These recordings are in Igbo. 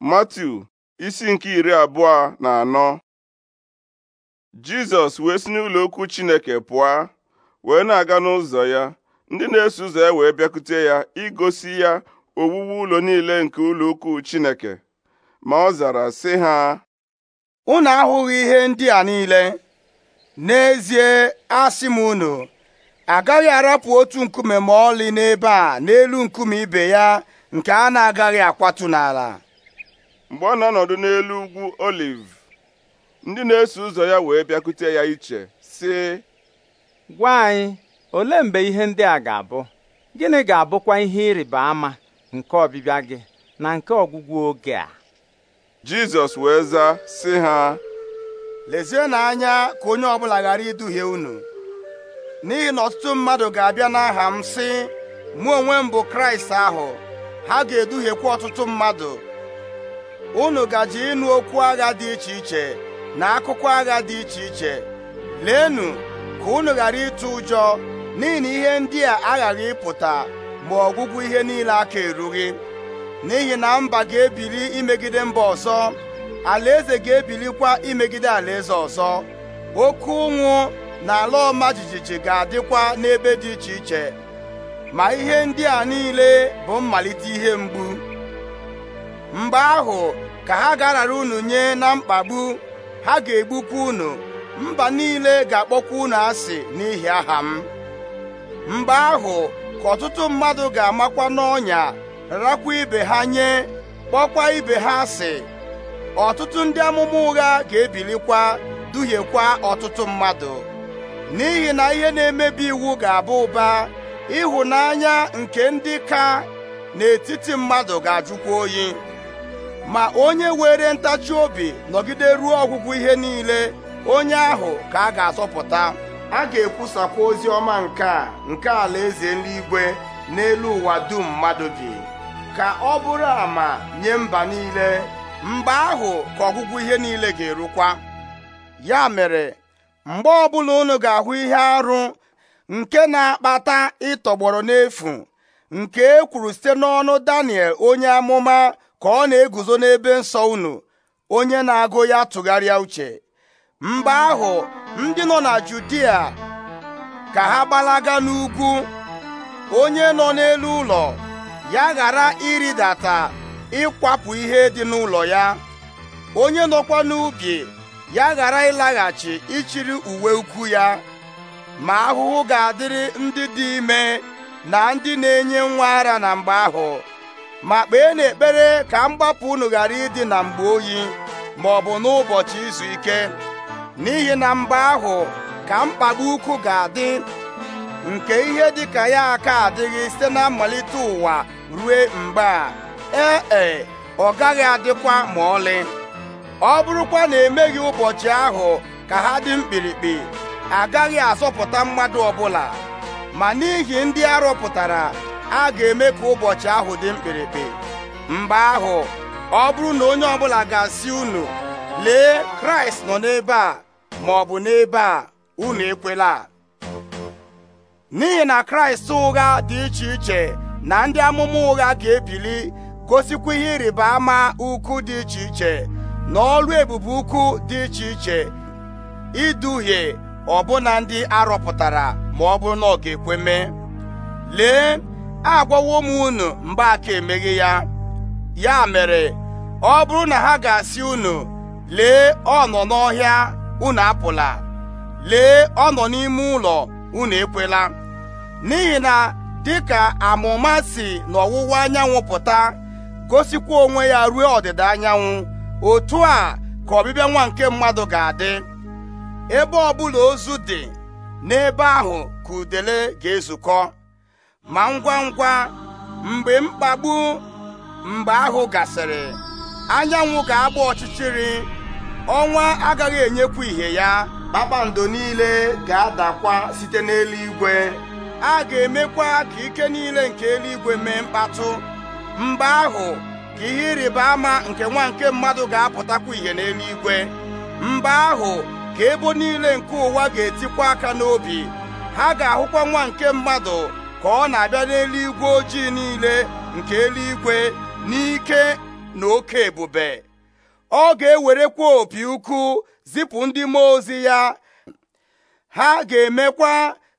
Matiu isi nke iri abụọ na anọ Jizọs wee si n'ụlọ okwu Chineke pụọ wee na-aga n'ụzọ ya ndị na-eso ụzọ ya wee bịakute ya igosi ya owuwu ụlọ niile nke ụlọ ukwu Chineke ma ọ zara sị ha unu ahụghị ihe ndị a niile n'ezie asị m unu agaghị arapụ otu nkume ma ọlị n'ebe a n'elu nkume ibe ya nke a na-agaghị akwatu n'ala mgbe ọ na-anọdụ n'elu ugwu oliv ndị na-eso ụzọ ya wee bịakute ya iche sị gwa anyị olee mgbe ihe ndị a ga-abụ gịnị ga-abụkwa ihe ịrịba ama nke ọbịbịa gị na nke ọgwụgwụ oge a Jizọs wee zaa sị ha lezienụ anya ka onye ọbụla ghara iduhie unu n'ihi na ọtụtụ mmadụ ga-abịa n'aha m si, mụ onwe m bụ Kraịst ahụ ha ga-eduhiekwa ọtụtụ mmadụ unu gaji ịnụ okwu agha dị iche iche na akụkọ agha dị iche iche leenụ ka unu ghara ịtụ ụjọ n'ihi na ihe ndị a aghaghị ịpụta ma ọgwụgwụ ihe niile aka erughị n'ihi na mba ga-ebili imegide mba ọzọ alaeze ga-ebilikwa imegide alaeze ọzọ oke ụnwụ na ala ọma jijiji ga-adịkwa n'ebe dị iche iche ma ihe ndị a niile bụ mmalite ihe mgbu mgbe ahụ ka ha ga unu nye na mkpagbu ha ga-egbukwa unu mba niile ga-akpọkwa unu asị n'ihi aha m mgbe ahụ ka ọtụtụ mmadụ ga-amakwa n'ọnya rakwa ibe ha nye kpọkwa ibe ha asị ọtụtụ ndị amụma ụgha ga-ebilikwa duhiekwa ọtụtụ mmadụ n'ihi na ihe na-emebi iwu ga-abụ ụba ịhụnanya nke ndị ka n'etiti mmadụ ga-ajụkwa oyi ma onye were ntachi obi nọgide ruo ọgwụgwụ ihe niile onye ahụ ka a ga-azọpụta a ga-ekwusakwa ozi ọma nke a nke alaeze n'igwe n'elu ụwa dum mmadụ bi ka ọ bụrụ ma nye mba niile Mba ahụ ka ọgwụgwụ ihe niile ga-erukwa ya mere mgbe ọbụla unu ga-ahụ ihe arụ nke na-akpata ịtọgbọrọ n'efu nke e kwuru site n'ọnụ Daniel onye amụma ka ọ na-eguzo n'ebe nsọ unu onye na-agụ ya tụgharịa uche mgbe ahụ ndị nọ na Judia ka ha gbalaga n'ugwu onye nọ n'elu ụlọ ya ghara ịrịdata ịkwapụ ihe dị n'ụlọ ya onye nọkwa n'ubi ya ghara ịlaghachi ichiri uwe ukwu ya ma ahụhụ ga-adịrị ndị dị ime na ndị na-enye nwa ara na mgbe ahụ ma kpee n'ekpere ka mgbapụ unu ghara ịdị na mgbe oyi ma ọ bụ n'ụbọchị izu ike n'ihi na mgbe ahụ ka mkpagbu ukwu ga-adị nke ihe dịka ya aka adịghị site na mmalite ụwa rue mgbe a ee e ọ gaghị adịkwa ma ọlị ọ bụrụkwa na emeghị ụbọchị ahụ ka ha dị mkpirikpi agaghị azọpụta mmadụ ọbụla ma n'ihi ndị arọpụtara a ga-eme ka ụbọchị ahụ dị mkpirikpi mgbe ahụ ọ bụrụ na onye ọbụla ga-asị unu lee kraịst nọ n'ebe a ma ọ bụ n'ebe a unu ekwela n'ihi na kraịst ụgha dị iche iche na ndị amụma ụgha ga-ebili gosikwa ihe ịrịba ama ukwu dị iche iche na ọrụ ebube ukwu dị iche iche iduhie ọbụna ndị arọpụtara ma ọ bụrụ na ọ ga-ekwe mee lee agwawo m unu mgbe aka emeghị ya ya mere ọ bụrụ na ha ga-asị unu lee ọnọ nọ n'ọhịa unu apụla lee ọ nọ n'ime ụlọ unu ekwela n'ihi na dịka amụma si n'ọwụwa anyanwụ pụta gosikwa onwe ya ruo ọdịda anyanwụ otu a ka ọbịbịa nwa nke mmadụ ga-adị ebe ọbụla ozu dị n'ebe ahụ ka udele ga-ezukọ ma ngwa ngwa mgbe mkpagbu mgbe ahụ gasịrị anyanwụ ga-agba ọchịchịrị ọnwa agaghị enyekwu ihe ya kpakpando niile ga-adakwa site n'eluigwe a ga-emekwa ka ike niile nke eluigwe mee mkpatụ mgbe ahụ ka ihe ịrịba ama nke nwa nke mmadụ ga-apụtakwa ihe n'eluigwe mgbe ahụ ka ebo niile nke ụwa ga-etikwa aka n'obi ha ga-ahụkwa nwa nke mmadụ ka ọ na-abịa n'eluigwe ojii niile nke eluigwe n'ike na oke ebube ọ ga-ewerekwa opi ukwu zipụ ndị mmụọ ozi ya ha ga-emekwa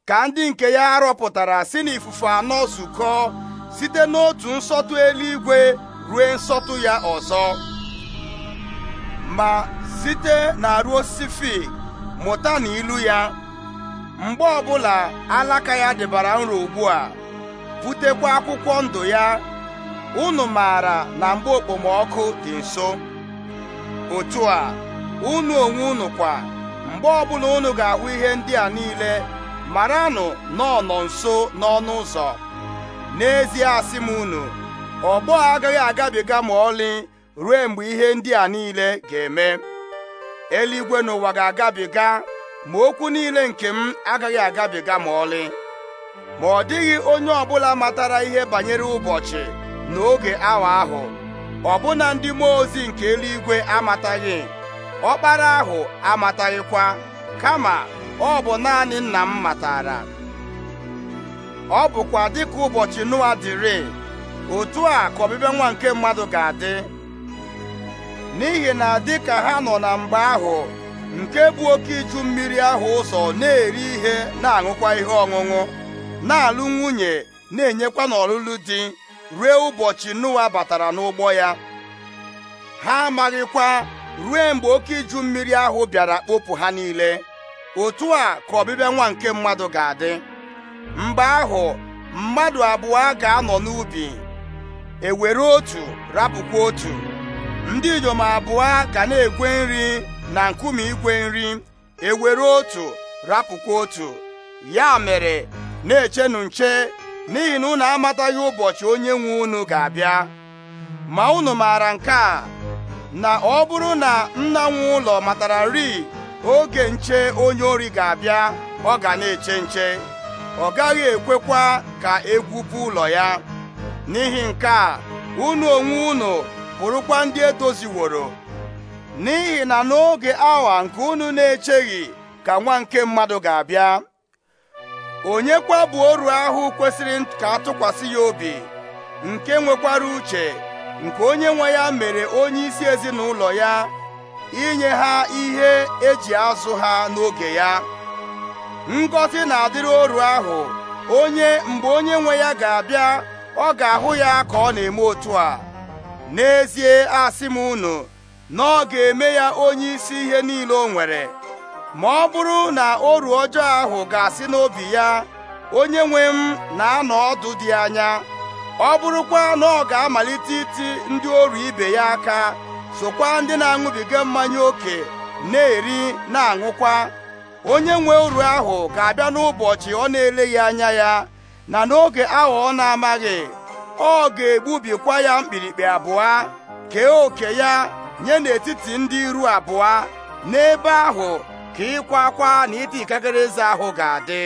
ka ndị nke ya rọpụtara si n'ifufe anọ zukọ site n'otu nsọtụ eluigwe rue nsọtụ ya ọzọ ma site na ruo osisi mụta na ya mgbe ọbụla alaka ya dịbara nro ugbu a butekwa akwụkwọ ndụ ya unu maara na mgbe okpomọkụ dị nso otu a unu onwe unu kwa mgbe ọbụla unu ga-ahụ ihe ndị a niile maranụ na nọ nso n'ọnụ ụzọ n'ezie asị m unu ọgbọ agaghị agabiga ma ọlị ruo mgbe ihe ndị a niile ga-eme eluigwe n'ụwa ga-agabiga ma okwu niile nke m agaghị agabiga ma ọlị ma ọ dịghị onye ọbụla matara ihe banyere ụbọchị n'oge awa ahụ ọbụna ndị mmụọ ozi nke eluigwe amataghị ọkpara ahụ amataghịkwa kama ọ bụ naanị nna m matara ọ bụkwa dịka ụbọchị Noa dịrị otu a ka ọbịbịa nwa nke mmadụ ga-adị n'ihi na dịka ha nọ na mgbe ahụ nke bụ oke iju mmiri ahụ ụzọ na-eri ihe na-aṅụkwa ihe ọṅụṅụ na-alụ nwunye na-enyekwa n'ọlụlụ di ruo ụbọchị Noa batara n'ụgbọ ya ha amaghịkwa rue mgbe oke iju mmiri ahụ bịara kpopụ ha niile otu a ka ọbịbịa nwa nke mmadụ ga-adị mgbe ahụ mmadụ abụọ ga-anọ n'ubi ewere otu rapụkwa otu ndị inyom abụọ ga na-egwe nri na nkume igwe nri ewere otu rapụkwa otu ya mere na-echenu nche n'ihi na unu amataghị ụbọchị onye nwe unu ga-abịa ma unu maara nke a na ọ bụrụ na nna nwe ụlọ matara nri oge nche onye ori ga-abịa ọ ga na-eche nche ọ gaghị ekwekwa ka egwupụ ụlọ ya n'ihi nke a unu onwe unu bụrụkwa ndị edoziworo n'ihi na n'oge awa nke unu na-echeghị ka nwa nke mmadụ ga-abịa onye kwabu bụ oru ahụ kwesịrị ka atụkwasị ya obi nke nwekwara uche nke onye nwe ya mere onye isi ezinụlọ ya inye ha ihe eji azụ ha n'oge ya ngọzi na-adịrị oru ahụ onye mgbe onye nwe ya ga-abịa ọ ga-ahụ ya ka ọ na-eme otu a n'ezie asị m unu na ọ ga-eme ya onye isi ihe niile o nwere ma ọ bụrụ na oru ọjọọ ahụ ga-asị n'obi ya onye nwe m na-anọ ọdụ dị anya ọ bụrụkwa na ọ ga-amalite iti ndị oru ibe ya aka sokwa ndị na-aṅụbiga mmanya ókè na-eri na-aṅụkwa onye nwe oru ahụ ga-abịa n'ụbọchị ọ na-eleghị anya ya na n'oge ahụ ọ na-amaghị ọ ga-egbubikwa ya mkpirikpi abụọ kee oke ya nye n'etiti ndị iru abụọ n'ebe ahụ ka ịkwa akwa na iti ikikere eze ahụ ga-adị